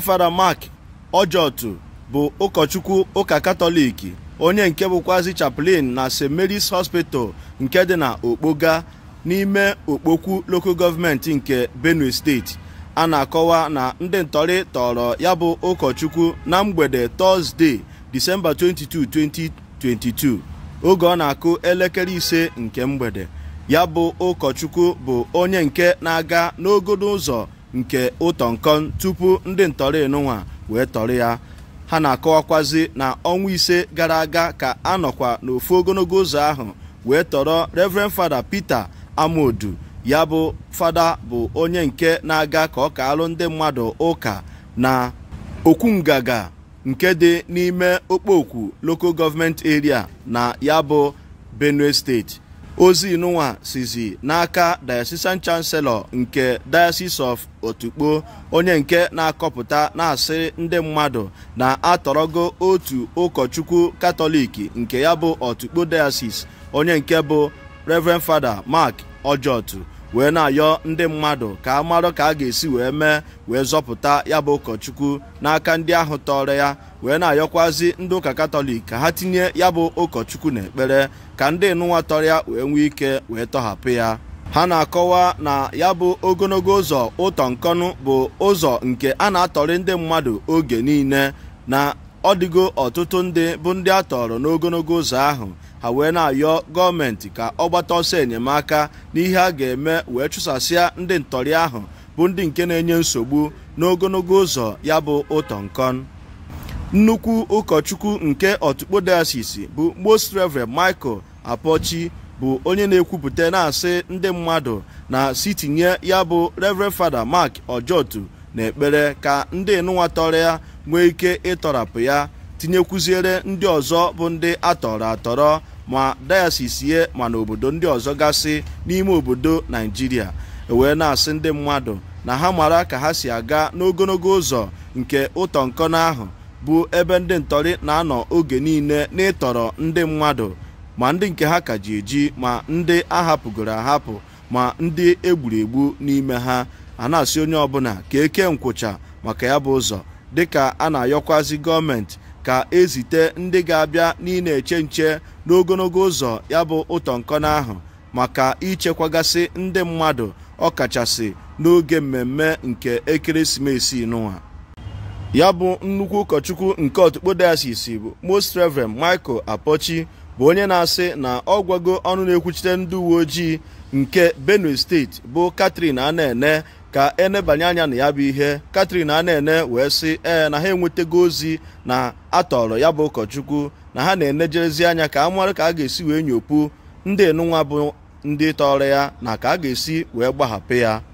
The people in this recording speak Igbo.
Fada Mark Ojotu bụ ụkọchukwu ụka katọlik onye nke bụkwazi chaplain na St Mary's Hospital nke dị na Okpoga n'ime Okpokwu Local Government nke Benue Steeti a na-akọwa na ndị ntọrị tọrọ ya bụ ụkọchukwu na mgbede Tọzdee Disemba 22, 2022 oge ọ na-akụ elekere ise nke mgbede ya bụ ụkọchukwu bụ onye nke na-aga n'ogodo ụzọ nke ụtọ nkon tupu ndị ntọrị enunwa wee tọrọ ya ha na-akọwakwazi na ọnwa ise gara aga ka a nọkwa n'ofu ogologo ụzọ ahụ wee tọrọ reverend fada peter amodu ya bụ fada bụ onye nke na-aga ka ọ kaalụ ndị mmadụ ụka na okwu nke dị n'ime okpokwu local government area na ya bụ benue steeti ozi nwa sizi n'aka diocesan chancellor nke diocese of otukpo onye nke na-akọpụta na-asị ndị mmadụ na-atọrọgo otu ụkọchukwu katọlik nke ya bụ otukpo diocese onye nke bụ reverend father mark ojotu wee na-ayọ ndị mmadụ ka a marụ ka a ga-esi wee mee wee zọpụta ya bụ ụkọchukwu n'aka ndị ahụ tọrọ ya wee na-ayọkwazi ndị ụka katọlik ka ha tinye ya bụ ụkọchukwu n'ekpere ka ndị nụnwa tọrọ ya wee nwee ike wee tọhapụ ya ha na-akọwa na ya bụ ogologo ụzọ ụtọ nkọnụ bụ ụzọ nke a na-atọrị ndị mmadụ oge niile na ọ dịgo ọtụtụ ndị bụ ndị a tọrọ n'ogologo ụzọ ahụ ha wee na-ayọ gọọmenti ka ọ gbata ọsọ enyemaka n'ihe a ga-eme wee chụsasịa ndị ntọrị ahụ bụ ndị nke na-enye nsogbu n'ogologo ụzọ ya bụ ụtọ nkon nnukwu ụkọchukwu nke ọtụkpo diocese bụ most reverend michael apochi bụ onye na-ekwupụta na-asị ndị mmadụ na sitinye ya bụ reverend fada mark ojotu na ekpere ka ndị tọrọ ya nwee ike ịtọrapụ ya tinyekwuziere ndị ọzọ bụ ndị atọrọ atọrọ ma dayasis ma n'obodo ndị ọzọ gasị n'ime obodo naijiria e wee na-asị ndị mmadụ na ha mara ka ha si aga n'ogologo ụzọ nke ụtọ nkọna ahụ bụ ebe ndị ntọrị na-anọ oge niile n'ịtọrọ ndị mmadụ ma ndị nke ha ka ji eji ma ndị ahapụgoro ahapụ ma ndị egburu egbu n'ime ha a na-asị onye ọbụla ka eke nkwụcha maka ya bụ ụzọ dịka a na-ayọkwazi gọọmenti ka ezite ndị ga-abịa n'ịna eche nche n'ogologo ụzọ ya bụ ụtọ nkọna ahụ maka ichekwagasị ndị mmadụ ọkachasị n'oge mmemme nke ekeresimesi n'ụwa ya bụ nnukwu ụkọchukwu nke ọtụkpo diocese bụ most reverend michael apochi bụ onye na-asị na ọ ọnụ na-ekwuchite ndị uwe ojii nke benue steeti bụ catherine ana ka enebanye anya na ya bụ ihe katrin a na-ene wee sị ee na ha enwetago ozi na atọrọ ya bụ ụkọchukwu na ha na-enejerezi anya ka a ka a ga-esi wee nyopu ndị enunwa bụ ndị tọrọ ya na ka a ga-esi wee gbahapụ ya